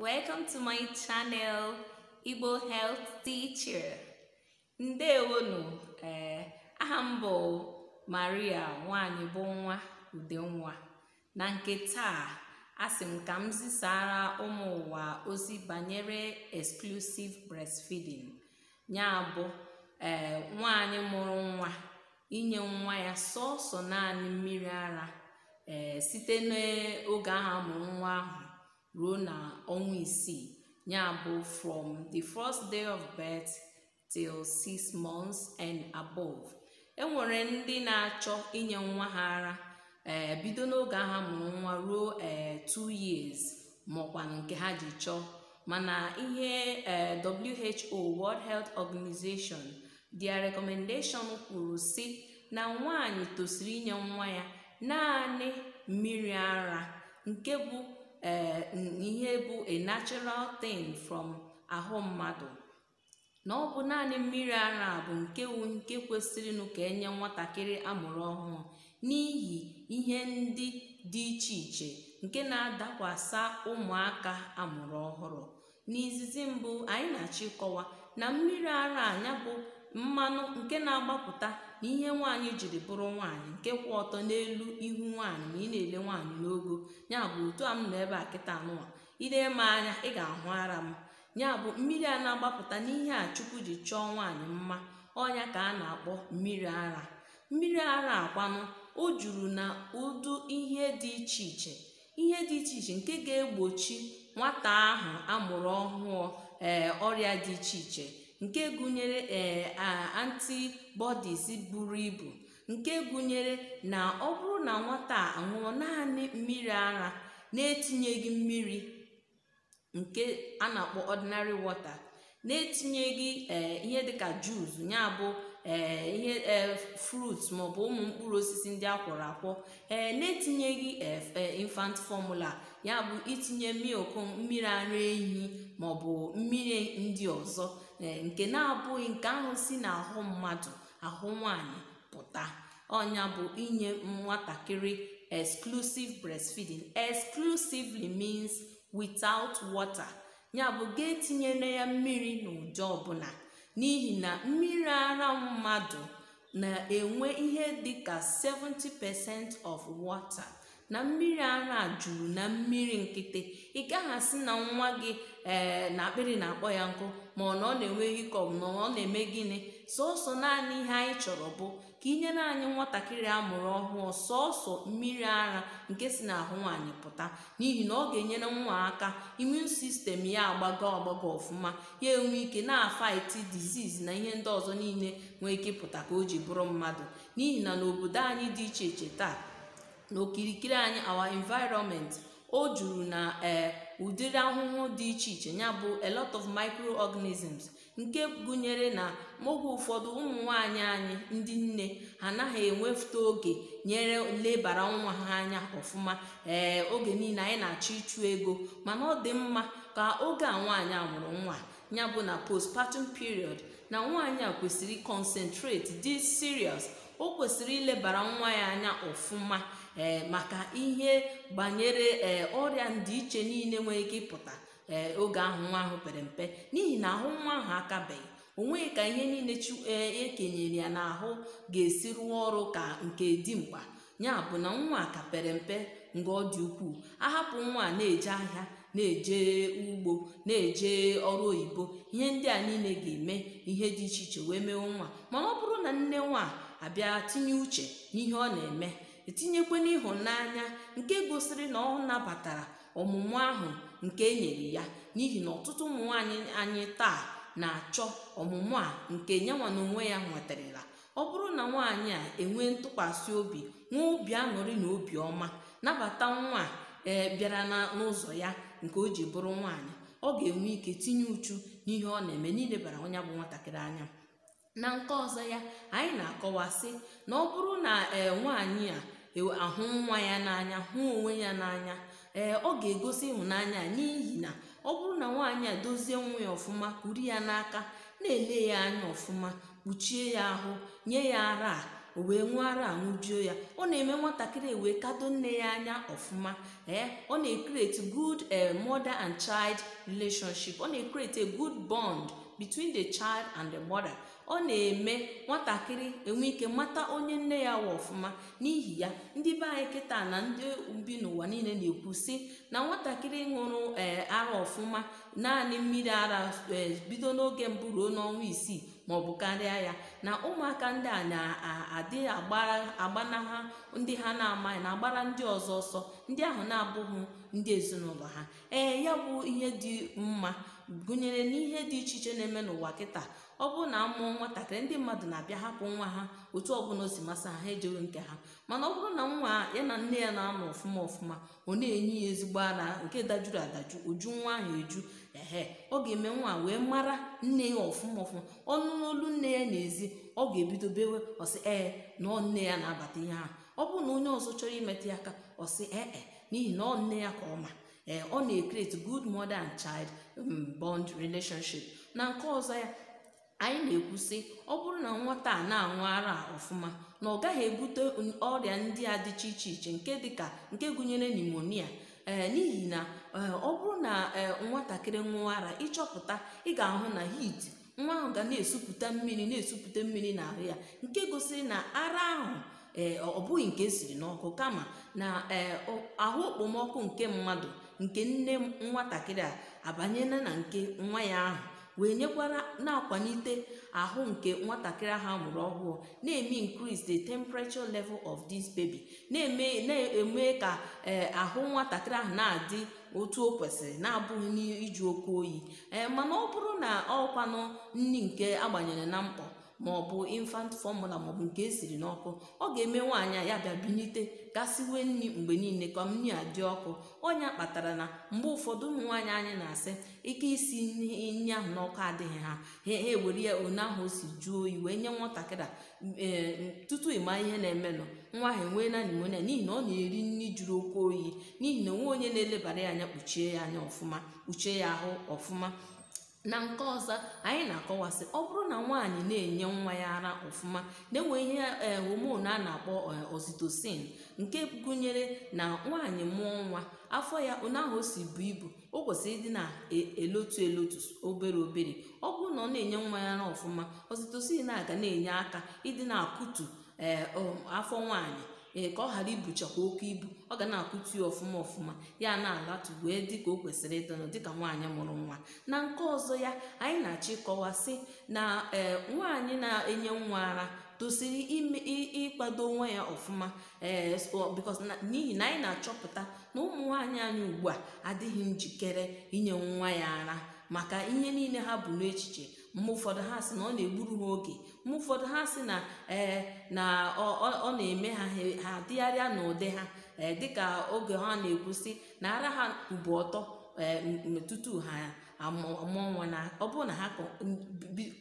welcome to my channel igbo health teacher ndewonu ee eh, aha m bụ maria nwanyị bụ nwa udenwa na nke taa asị m ka m zisara ụmụ ụwa ozi banyere exclusive breastfeeding ya bụ ee eh, nwanyị mụrụ nwa inye nwa ya sọsọ naanị mmiri ara eh, site n'oge ahụ mụrụ nwa ahụ ruo na ọnwa isii ya bụ from the first day of birth till six months and above enwere ndị na-achọ inye nwa ha ara ee eh, bido n'oge ha mụrụ nwa ruo eh, two years maọkwa nke ha ji chọọ mana ihe eh, WHO World Health Organization their recommendation kwuru si na nwaanyị tosiri inye nwa ya naanị mmiri ara nke bụ Eh, ihe bụ a natural thing from ahụ mmadụ na ọ bụ naanị mmiri ara bụ nke wu nke kwesịrịnụ ka enye nwatakịrị amụrụ ọhụrụ n'ihi ihe ndị dị iche iche nke na-adakwasa ụmụaka amụrụ ọhụrụ n'izizi mbụ anyị na-achọ ịkọwa na mmiri ara anya bụ mmanụ nke na-agbapụta n'ihe ihe nwaanyị jiri bụrụ nwaanyị nke kwụ ọtọ n'elu ihu nwaanyị ma ị na-ele nwaanyị n'ogo ya bụ otu a m nọ ebe a kịta nụwa ile m anya ị ga-ahụ ara m ya bụ mmiri a na-agbapụta n'ihe a chukwu ji chọọ nwaanyị mma ọnya ka a na-akpọ mmiri ara mmiri ara akwanụ o juru na ụdụ ihe dị iche iche ihe dị iche iche nke ga-egbochi nwata ahụ amụrụ ọhụụ ee eh, ọrịa dị iche iche nke gụnyere ee eh, antibodies buru ibu nke gụnyere na ọ bụrụ na nwata a ṅụọ naanị mmiri ara na-etinyeghị mmiri nke a na-akpọ ordinary wọta na-etinyeghị eh, ihe dịka jus ya bụ ee eh, ihe frut maọbụ ụmụ mkpụrụ osisi ndị akwọrọ akwọ ee na-etinyeghị infant fọmula ya bụ itinye milk mmiri ara ehi maọbụ mmiri ndị ọzọ Eh, nke na-abụghị nke ahụ si n'ahụ mmadụ ahụ nwanyị pụta ọnya bụ inye nwatakịrị exclusive breastfeeding exclusively means without water ya bụ ga etinyere ya mmiri n'ụdị ọbụla n'ihi na mmiri ara mmadụ na-enwe ihe dịka 70% of water na mmiri ara juru na mmiri nkịtị ị gaghị asị na nwa gị ee eh, na akpịrị na-akpọ ya nkụ ma na ọ na enweghị hikọp na ọ na-eme gịnị sọsọ naanị ihe anyị chọrọ bụ ka nyere anyị nwatakịrị amụrụ ọhụụ sọsọ mmiri ara nke si n'ahụ nwaanyị pụta n'ihi na ọ ga-enyere nwa aka imun sistem ya agbago agbago ọfụma ya enwe ike na-afaiti diziz na ihe ndị ọzọ niile nwee ike pụta ka o ji bụrụ mmadụ n'ihi na n'obodo anyị dị iche iche taa n'okirikiri anyị awa environment o juru na ee eh, ụdịrị ahụhụ dị iche iche ya bụ a lot of microorganisms nke gụnyere na oge ụfọdụ ụmụ nwanyị anyị ndị nne anaghị enwefute oge nyere lebara nwa ha anya ọfụma ee eh, oge niile anyị na-achọ ịchụ ego mana ọ dị mma ka oge a nwaanyị a mụrụ nwa ya bụ na postpartum period na nwaanyị a kwesịrị concentrate dị serious o kwesịrị ilebara nwa ya anya ọfụma ee maka ihe gbanyere ee ọrịa ndị iche niile nwere ike ịpụta ee oge ahụ nwa ahụ pere mpe n'ihi na ahụ nwa ahụ akabeghị o nweghị ka ihe niile ekenyere e ya n'ahụ ga-esi rụọ ọrụ ka nke dimkpa ya bụ na nwa ka pere mpe nga ọ dị ukwuu ahapụ nwa na-eje ahịa na-eje ugbo na-eje ọrụ oyibo ihe ndị a niile ga-eme ihe dị iche iche wee mewe nwa mana ọ bụrụ na nne nwa abịa tinye uche n'ihe ọ na-eme etinyekwana n'ịhụnanya nke gosiri na ọ nabatara ọmụmụ ahụ nke e nyere ya n'ihi na ọtụtụ ụmụ anyị taa na-achọ ọmụmụ a nke nyanwa na onwe ya nwetarala ọ bụrụ na nwaanyị a enwee ntụkwasị obi nwee obi aṅụrị na obi ọma nabata nwa e bịara n'ụzọ ya nke o ji bụrụ nwaanyị ọ ga-enwe ike tinye uchu n'ihe ọ na-eme n'ilebara onye bụ nwatakịrị anya na nke ọzọ ya anyị na-akọwasị na ọ bụrụ na ee nwaanyị a e, ahụ nwa ya n'anya hụ onwe ya n'anya ee ọ ga-egosi ịhụnanya n'ihi na ọ bụrụ na nwaanyị a dozie nwa ya ọfụma kuru ya n'aka na-ele ya anya ọfụma kpuchie ya ahụ nye ya ara o wee nwee ara aṅụjuo ya ọ na-eme nwatakịrị ewee kado nne ya anya ọfụma ee ọ na-ekreti good e, mother and child relationship ọ na-ekreti a good bond between the child and the mother ọ na-eme nwatakịrị enwe ike mata onye nne ya wa ọfụma n'ihi ya ndị be anyị kịta na ndị bi n'ụwa niile na-ekwu sị na nwatakịrị ṅụrụ ee ara ọfụma naanị mmiri ara e, bido n'oge mbụ ruo n'ọnwa isii ma bụ karịa ya na ụmụaka ndị a na-adị agbanaha ndị ha na-amaghị na agbara ndị ọzọ ọsọ ndị ahụ na-abụghị ndị ezinụlọ ha ee ya bụ ihe dị mma gụnyere n'ihe dị iche iche na-eme n'ụwa kịta ọ bụrụ na mụọ nwatakịrị ndị mmadụ na-abịa hapụ nwa ha otu ọbụla o si masị ha ha ejeghị nke ha mana ọ bụrụ na nwa ya na nne ya na-anọ ọfụma ọfụma ọ na-enye ya ezigbo ara nke dajuru adaju uju nwa ahụ eju ehe ọ ga-eme nwa wee mara nne ya ọfụma ọfụma ọnụ n'olu nne ya n'ezi ọ ga-ebido bewe ọsị ee na nne ya na-abata ihe ahụ ọ bụrụ na onye ọzọ chọrọ imetụ ya aka ọsị ee n'ihi na ọ nne ya ka ọma ee eh, ọ na-ekreti good mother and child um, bond relationship na nke ọzọ ya anyị na-ekwusi ọ bụrụ na nwata a na-aṅụ ara ọfụma na ọ gaghị ebute ọrịa ndị a dịcha iche iche nke dịka nke gụnyere nimonia ee eh, n'ihi na eh, ọ bụrụ na nwatakịrị ṅụọ ara ịchọpụta ị ga-ahụ na hit nwa ahụ ga na-esupụta mmiri na-esupụta mmiri n'ahụ ya nke gosiri na ara ahụ ee eh, ọ bụghị nke esiri n'ọkụ kama na eh, ahụ okpomọkụ nke mmadụ nke nne nwatakịrị a abanyela na nke nwa ya ahụ wee nyekwara na-akwalite ahụ nke nwatakịrị ahụ amụrụ ọhụụ na-eme increase the temperature level of this baby na-eme ka eh, ahụ nwatakịrị ahụ na-adị otu o kwesịrị na-abụghị n'iju okwu oyi mana ọ bụrụ na ọkwanụ nri nke agbanyere na mkpọ bụ infant ọ maọbụ nke esiri n'ọkụ ọ ga-eme nwaanyị ya bịa binite gasiwe nri mgbe niile ka nri a dị ọkụ ọnya kpatara na mgbe ụfọdụ ụmụ nwaanyị anyị na-asị ike isi nri ahụ n'ọkụ adịghị ha ha ewere ya one ahụ o si jụọ oyi wee nye nwatakịrị ee tutu ịma ihe na-emenụ nwa ha enwee na nimonia n'ihi na ọ na-eri nri jụrụ oke oyi n'ihi na onwe onye na-elebara ya anya kpuchie ya anya ọfụma kpuchie ya ahụ ọfụma na nke ọzọ anyị na-akọwasị ọ bụrụ na nwaanyị na-enye nwa ya ara ọfụma na-enwe ihe eh, homon a na-akpọ eh, oxytocin nke gụnyere na nwaanyị mụọ nwa afọ ya ụnyaahụ si bụ ibu o kwesịrị ịdị na-elotu e, elotu obere obere ọ bụrụ na ọ na-enye nwa ya ara ọfụma oxytocin na-aga na-enye aka ịdị na-akụtu eh, um, afọ nwaanyị ee ka ọ ghara ibuchakwa oke ibu ọ ga na-akụtu ya ọfụma ọfụma ya na-alatu wee dịka o kwesịrị ịdịnụ dịka nwaanyị mụrụ nwa na nke ọzọ ya anyị na-achọ sị na e, nwaanyị na-enye nwa ara tosiri ịkwado onwe ya ọfụma ee n'ihi na anyị na-achọpụta na ụmụ nwaanyị anyị ugbu a adịghị njikere inye nwa ya ara maka ihe niile ha bụ n'echiche mgbe ụfọdụ ha sị na ọ na-egburu ha oge mgbe ụfọdụ ha sị na ee eh, na ọ na-eme ha ha dịgharịa n'ụdị ha ee eh, dịka oge ha na-ekwusị na ara ha ube ọtọ ee eh, tutu ha amụọ nwa na ọ bụrụ na ha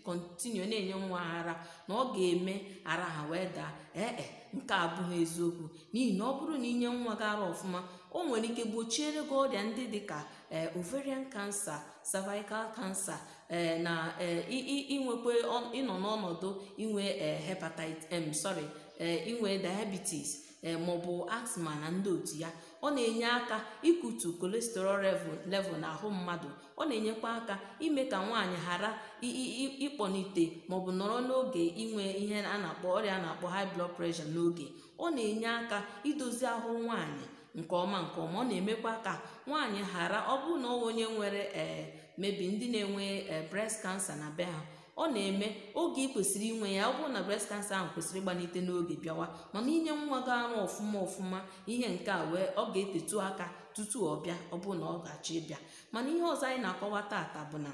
kọntinue na-enye nwa ara na ọ ga-eme ara ha wee daa ee nke abụghị eziokwu n'ihi na ọ bụrụ na inye nwa gị ara ọfụma o nwere ike gbochiere gị ọrịa ndị dịka eh, ovarian cancer cervical cancer eh, na eh, inwekwe ịnọ n'ọnọdụ inwe hepatitis sorry inwe diabetes maọbụ asthma na ndị otu ya ọ na-enye aka ikutu kolesterol level n'ahụ mmadụ ọ na-enyekwa aka ime ka nwaanyị ghara ịkpọnite maọbụ nọrọ n'oge inwe ihe a na-akpọ ọrịa a na-akpọ high blood pressure n'oge ọ na-enye aka idozi ahụ nwaanyị nke ọma nke ọma ọ na-emekwa ka nwaanyị ghara ọ bụrụ na onye nwere ee mebi ndị na-enwe e, breast cancer na be ha ọ na-eme oge ị kwesịrị inwe ya ọ bụrụ na breast cancer ahụ kwesịrị ịgbanite n'oge bịawa mana inye nwa gị arụ ọfụma ọfụma ihe nke a wee ọ ga-etetu aka tutu ọ bịa ọ bụrụ na ọ gachi ịbịa mana ihe ọzọ anyị na-akọwa taata bụ na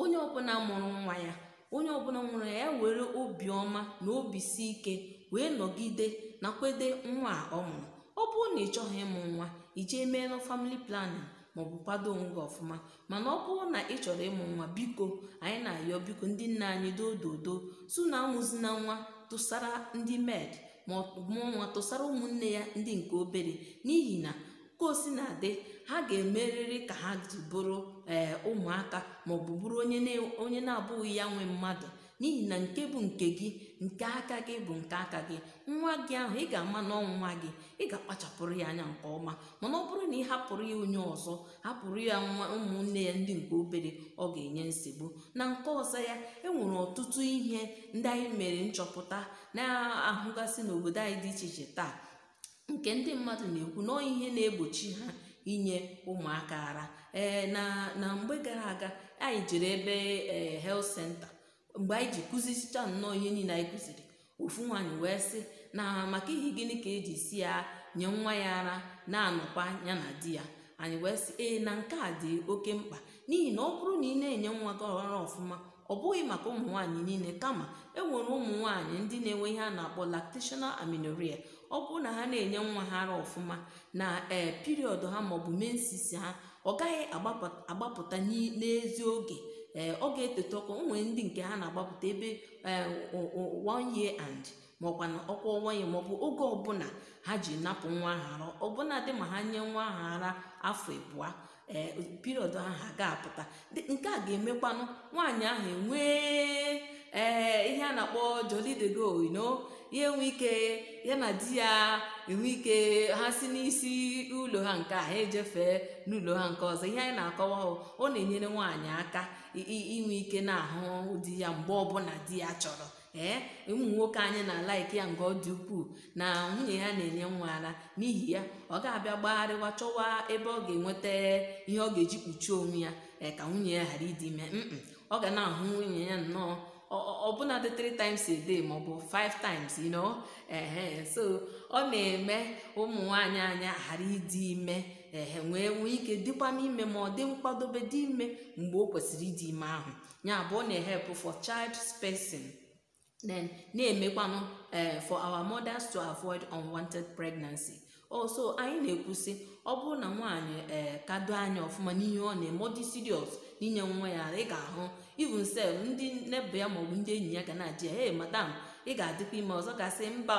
onye ọbụla mụrụ nwa ya onye ọbụla nwere ya e were obiọma na obi si ike wee nọgide nakwede nwa a ọ mụrụ ọ bụrụ na ị chọghị ịmụ nwa i jee meelụ famili planin maọbụ kwado onwe gị ọfụma mana ọ bụrụ na ị chọrọ ịmụ nwa biko anyị na-ayọ biko ndị nna anyị dododo su na amụzina nwa tụsara ndị med ma mụọ nwa tụsara ụmụnne ya ndị nke obere n'ihi na ka osi na-adị ha ga-emerịrị ka ha ji bụrụ ee eh, ụmụaka maọbụ bụrụ onye na-abụghị ya nwe mmadụ n'ihi na nke bụ nke gị nke aka gị bụ nke aka gị nwa gị ahụ ị ga-ama na nwa gị ị ga-akpachapụrụ ya anya nke ọma mana ọ bụrụ na ị hapụrụ ya onye ọzọ hapụrụ ya nwa ụmụnne ya ndị nke obere ọ ga-enye nsogbu na nke ọzọ ya enwere ọtụtụ ihe ndị anyị mere nchọpụta na-ahụgasị n'obodo anyị dị iche iche taa nke ndị mmadụ na-ekwu na ihe na-egbochi ha inye ụmụaka ara ee na na mgbe gara aga anyị jere ebe ee eh, health center mgbe anyị ji kụzicha nnọọ ihe niile anyị kụziri ofu nwaanyị wee sị na maka ihe gịnị ka eji si ya nye nwa ya ara na-anọkwa ya na di ya anyị wee sị ee na nke a dị oke mkpa n'ihi na ọ bụrụ na ị na-enye nwa gị ọhara ọfụma ọ bụghị maka ụmụ nwaanyị niile kama e nwere ụmụ nwaanyị ndị na-enwe ihe a na-akpọ lactational aminoria ọ bụrụ na ha na-enye nwa ha ara ọfụma na ee piriọdụ ha maọbụ mensis ha ọ gaghị agbapụta n'ezi oge Eh, ọ oge ọkụ nwee ndị nke ha na-agbapụta ebe eh, one year and maọkwa na ọkwa ọnwa ya maọbụ oge ọbụla ha ji napụ nwa ahụ ara ọbụna dị ma ha nye nwa ahụ ara afọ abụọ ee eh, piriọd ahụ ga-apụta nke a ga-emekwanụ nwaanyị ahụ enwee eh, ihe a na-akpọ jolidego ino ya enwe ike ya na di ya enwe ike ha si n'isi ụlọ ha nke a ha ejefee n'ụlọ ha nke ọzọ ihe anyị na-akọwa ọ na-enyere nwaanyị aka inwe ike na-ahụ di ya mgbe ọbụla di ya chọrọ ee eh, ụmụ nwoke anyị na-ala ike ya nke ọ dị ukwuu na nwunye ya na-enye nwa ara n'ihi ya ọ ga-abịa gbagharịwa chọwa ebe ọ ga-enweta ihe ọ ga-eji kpuchie onwe ya eh, ka nwunye ya ghara ịdị ime ọ ga na-ahụ nwunye ya nnọọ ọbụna dị 3 times a day bụ 5 times you know ehe so ọ na-eme ụmụ nwaanyị anyị ghara ịdị ime ehe nwee nwee ike dịkwa n'ime ma ọ dị nkwadobe dị ime mgbe o kwesịrị ịdị ime ahụ ya bụ ọ na-ehepụ for child spacing then na-emekwanụ ee eh, for our mothers to avoid unwanted pregnancy also anyị na-ekwusi ọ bụrụ na nwaanyị ee eh, kado anya ọfụma n'ihe ọ na-eme ọ dị serious n'inye nwa ya ị ga-ahụ even sef ndị nebụ ya maọbụ ndị enyi ya ga na adị ya e madam ị ga-adịkwa ime ọzọ gasị mba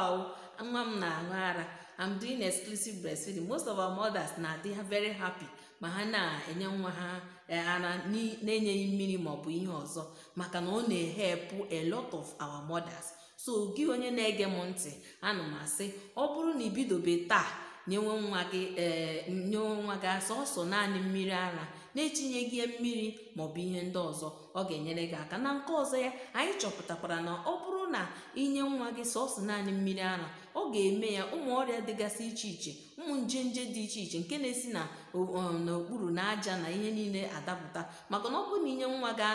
nwa m na-aṅụ ara I'm doing exclusive breastfeeding most of our mothers na-adị very happy ma ha na-enye nwa ha eh, ara na-enyeghị mmiri maọbụ ihe ọzọ maka na ọ na-ehepụ a lot of our mothers so gị onye na-ege m ntị ana m asị ọ bụrụ na ibidobe taa nyewe nwa gị ee eh, nyewe nwa gị sọsọ naanị mmiri ara na-etinyeghị mmiri maọbụ ihe ndị ọzọ ọ ga-enyere gị aka na nke ọzọ ya anyị chọpụtakwara na ọ bụrụ na inye nwa gị sọsọ naanị mmiri ara ọ ga-eme ya ụmụ ọrịa dịgasị iche iche ụmụ nje nje dị iche iche nke na-esi na n'okpuru na aja na ihe niile adapụta maka na ọ bụrụ na inye nwa ga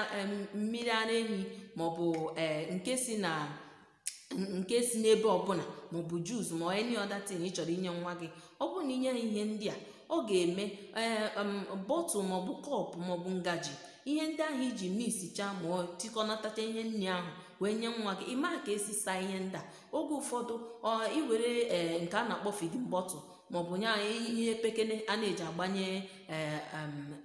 mmiri ara ehi maọbụ e, nke si na nke si n'ebe ọbụla maọbụ jus ma any other thing ị chọrọ inye nwa gị ọ bụrụ na inye ha ihe ndị a ọ ga-eme e, bọtụ maọbụ kọpụ maọbụ ngaji ihe ndị ahụ iji misicha ma tikọnatacha ihe nri ahụ wee nye nwa gị ịmaa ka esi saa ihe ndị oge ụfọdụ ọ iwere e, nke a na-akpọ fidin bọtụl maọbụ nye anyị ihe pekene a na-eji agbanye e,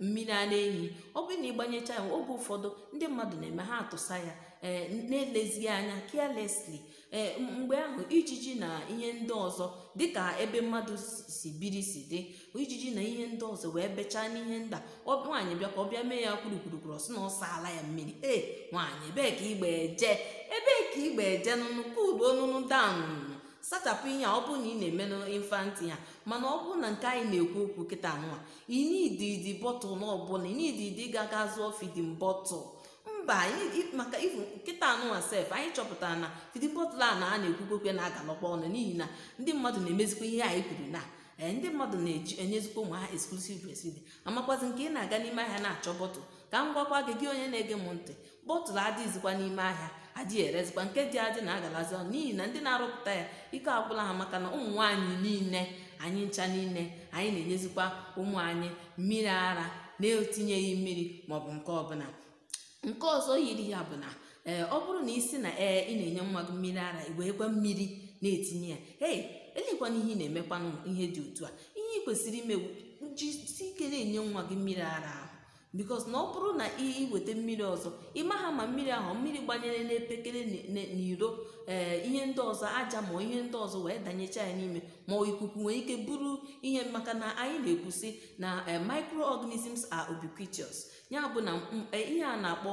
mmiri ara ehi ọ bụrụ na ịgbanyecha ya oge ụfọdụ ndị mmadụ na-eme ha atụsa ya e, na-elezighị anya carelessly ee eh, mgbe ahụ ijiji na ihe ndị ọzọ dịka ebe mmadụ si biri si dị ijiji na ihe ndị ọzọ wee bechaa n'ihe nda nwaanyị bịa ka ọ bịa mee ya kwurukwurukwuru ọ sị na ọ ala ya mmiri ee eh, nwaanyị ebee ka igbe je ebee ka igbe je nụnụ kudu onunu danụnụ sachapụ ihe a ọ bụrụ na ị na-eme n'ịfanti ya mana ọ bụrụ na nke anyị na-ekwu okwu kịta nwa inididi bọtụl na ọbụla inididi ga-aga zụọ fidin bọtụl mba anyị maka ifu nkịta anụnwa sef anyị chọpụtara na fidin bọtụlụ a na a na-ekwukwekwe na ọnụ n'ihi na ndị mmadụ na-emezikwa ihe anyị kwuru na ee eh, ndị mmadụ na enyezikwa ụmụ ha eksklusiv breastfeeding amakwazi nke ị na-aga n'ime ahịa na-achọ bọtụl ka m gwakwa gị gị onye na-ege m ntị bọtụlụ adịghịzikwa n'ime ahịa adịghị erezikwa nke dị adị na-agalazi ọnụ n'ihi na ndị na-arụpụta ya ike agwụla ha maka na ụmụ nwaanyị niile anyị ncha niile anyị na-enyezikwa ụmụ anyị mmiri ara na-etinyeghị mmiri maọbụ nke ọbụla nke ọzọ yiri ya bụ na ee eh, ọ bụrụ na isi na ee eh, ị na-enye nwa gị mmiri ara wee mmiri na-etinye ya ee elekwana ihe ị na-emekwanụ ihe dị otu a ihe ị kwesịrị ime jisi ike na-enye nwa gị mmiri ara bikos na ọ bụrụ na iweta mmiri ọzọ ha ma mmiri ahụ mmiri gbanyere n'epekere n'iro ee eh, ihe ndị ọzọ aja ma ihe ndị ọzọ wee danyecha ya n'ime ma ikuku nwee ike bụrụ ihe maka na anyị na-ekwusi na eh, microorganisms are ubiquitous ya bụ na mm, eh, ihe a na-akpọ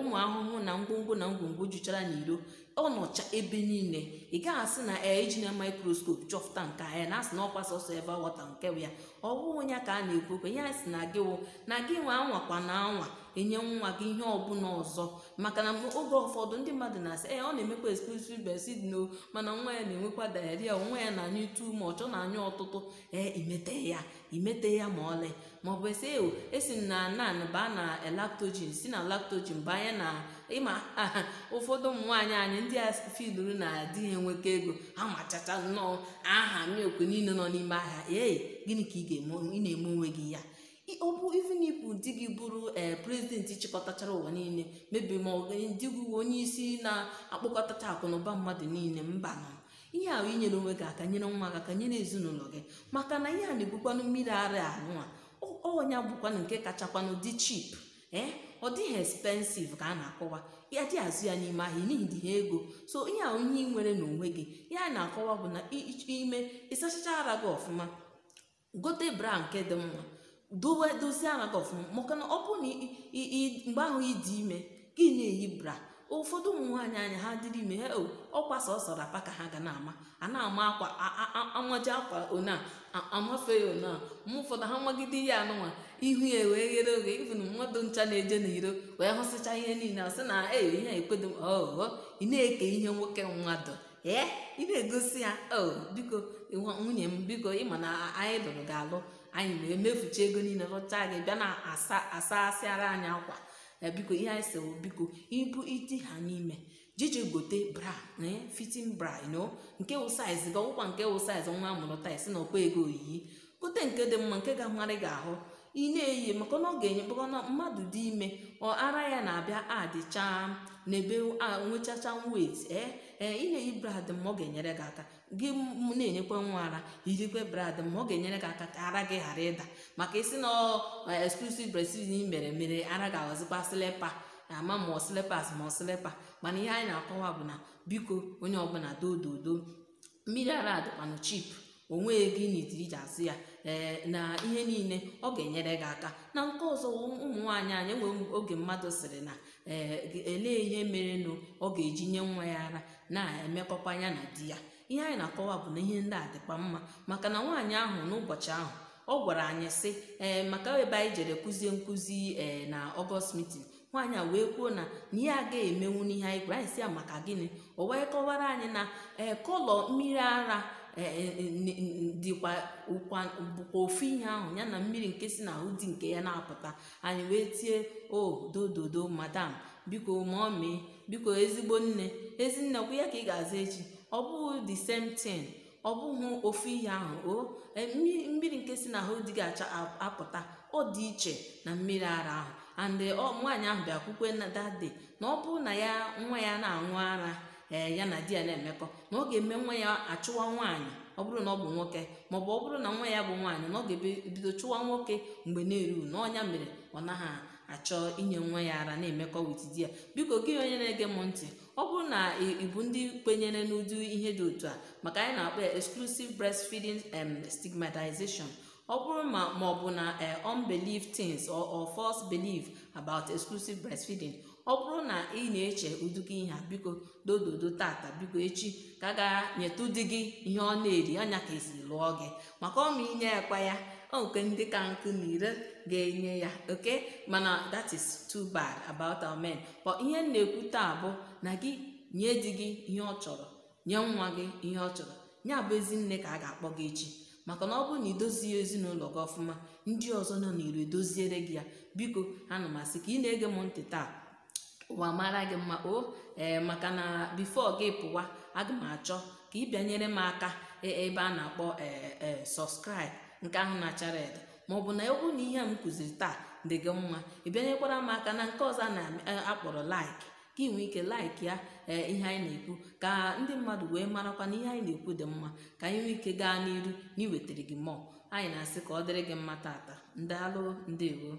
ụmụ ahụhụ na ngwongwo na ngwongwo juchara n'iro ọ nọcha ebe niile ị gaghị asị na ee eji na microscope chọpụta nke anya na asị na ọkwa sọsọ ebe wọta nke ya ọ bụghị onye ka a na-ekwu okwe ya sị na gịwo na gị nwe anwakwa na anwa enye nwa gị ihe ọbụla ọzọ maka na oge ụfọdụ ndị mmadụ na-asị ee ọ na-emekwa exclusive breastfeeding no mana nwa ya na-enwekwa diarrhea nwa ya na-anyụ too ma ọ na-anyụ ọtụtụ ee imete ya imete ya ma ọlị maọbụ esi ewo esi na nan baa na lactogen si na lactogen banye na ịma ụfọdụ ụmụ nwaanyị anyị ndị a fiduru na adị ya enwekọ ego ha machacha nnọọ aha milk niile nọ n'ime ahịa ee gịnị ka ị ga-eme ị na-eme onwe gị ya ọ bụ even if di gị bụrụ eh, prezidenti chịkọtachara ụwa niile mebi ma ndị gị onye isi na-akpọkọtacha akụnụba mmadụ niile mba nọ ihe ahụ inyere onwe gị aka nyere nwa gị aka nyere ezinụlọ gị maka na ihe a na-ebukwanụ mmiri ara anụa ọnya bụkwanụ nke kachakwanụ dị chip ee eh? ọ dịghị ekspensiv ka a na-akọwa ya dị azụ ya n'ime ahịa n'ihi dị ha ego so ihe ahụ ihe ị nwere n'onwe gị a na-akọwa bụ na ime ịsachacha ara gị ọfụma gote bra nke dị mma dowe dozie anata ọfụma maka na ọ bụrụ na mgbe ahụ ịdị ime gị na-eyi bra ụfọdụ ụmụ nwaanyị anya ha dịrị ime ha ọkwa sọsọ rapa ka ha ga na-ama a na-ama akwa amaji akwa ona amafe ya ona ma ụfọdụ ha nwagide ya anụnwa ihu ya wee ghere oge ịbụ na mmadụ ncha na-eje na iro wee hụsịcha ihe niile sị na ee ihe ekwedo oh, ọghọ oh, ị na-eke ihe nwoke mmadụ ee ị na-egosi ya oh, biko nwunye m biko ịma na anyị lụrụ ga-alụ anyị wee mefucha ego niile rụcha anyị bịa na asa asịara anyị akwa ya biko ihe anyị si biko ibu iti ha n'ime jiji gote bra fitin bra no nke wụ saiz gị ọkwa nke wụ saiz nwa amụrụ taa na ọkwa ego oyiyi gote nke dị mma nke ga-amarị gị ahụ ị na-eyi maka na ọ ga-enye na mmadụ dị ime ọ ara ya na-abịa adịcha n'ebe nwechacha wet ee eh, ee eh, ị na-eyi brad ma ọ ga-enyere gị aka gị na-enyekwa nwa ara irikwe brad ma ọ ga-enyere gị aka ka ara gị ghara ịda maka isi na eh, exclusive breastfeeding mere mere ara ga-aghọzikwa slepa ama ma ọ slipas ma mana ihe anyị na-akọwa bụ na biko onye ọbụla dododo mmiri ara adịkwanụ chip onwe gị gịnị tiri ya ee na ihe niile ọ ga-enyere gị aka na nke ọzọ ụmụ nwaanyị anyị enweghị oge mmadụ sịrị na ee elee ihe mere nụ ọ ga-eji nye nwa ya ara na-emekọkwa ya na di ya ihe anyị na-akọwa bụ na ihe ndị a dịkwa mma maka na nwaanyị ahụ n'ụbọchị ahụ ọ gwara anyị sị ee maka ebe anyị jere kụzie nkụzi ee na ọgọst mitin nwaanyị a wee kwuo na na a ga emenwu n'ihe anyị gwara anyị si ya maka gịnị ọ wee kọwara anyị na ee kọlọ mmiri ara Eh, eh, eh, dịkwa ụkwa bụkwa ofu ihe ahụ ya na mmiri nke si n'ahụ di nke ya na-apụta anyị wee tie o dododo madam biko mee biko ezigbo nne ezinne kwụ ya ka ị ga-aza echi ọ bụghị the same thing ọ bụghị ofu ihe ahụ o mmiri nke si n'ahụ dị ga-acha apụta ọ dị iche na mmiri ara ahụ and nwaanyị ahụ bịakwukwe na dade na ọ bụrụ na ya nwa ya na-aṅụ ara ee eh, ya na di ya na-emekọ na ọ ga-eme nwa ya achụwa nwaanyị ọ bụrụ na ọ bụ nwoke maọbụ ọ bụrụ na nwa ya bụ nwaanyị na ọ ga-ebido chụwa nwoke mgbe na-eru na ọnya mere ọ naghị achọ inye nwa ya ara na-emekọ wit di ya biko gị onye na-ege m ntị ọ bụrụ na ị bụ ndị kwenyere n'ụdị ihe dị otu a maka anyị na-akpọ ya exclusive breastfeeding and stigmatization ọ bụrụ ma ma ọ bụ na eh, unbelief things or false belief about exclusive breastfeeding ọ bụrụ na ị na-eche ụdịka ihe a biko dododo tata biko echi ka a ga nyetụ di gị ihe ọ na-eri anya ka esi lụọ gị maka ọma inye ekwa ya oke ndị ka nkụ na ire ga-enye ya oke mana that is too bad about our men but ihe m na-ekwu taa bụ na gị nye di gị ihe ọ chọrọ nye nwa gị ihe ọ chọrọ ya bụ ezi nne ka a ga-akpọ gị echi maka na ọ bụrụ na idozie ezinụlọ gị ọfụma ndị ọzọ nọ n'iro edoziere gị ya biko ha m masị ka ị na-ege m ntị taa ụwa mara gị mma o ee maka na bifo gị pụwa aga m achọ ka ị bịanyere m aka e, ebe a na-akpọ ee sọskraịbụ nke ahụ na-achara ede maọbụ na egwu na ihe a m kụziri taa dị gị mma ị bịanyekwara m aka na nke ọzọ a na-akpọrọ e, laik ka ị nwee ike laik ya ee ihe anyị na-ekwu ka ndị mmadụ wee marakwa na ihe anyị na-ekwu dị mma ka anyị nwee ike gaa n'iru na nwetara gị mmụọ anyị na-asị ka ọ dịrị gị mma tata ndị ndewo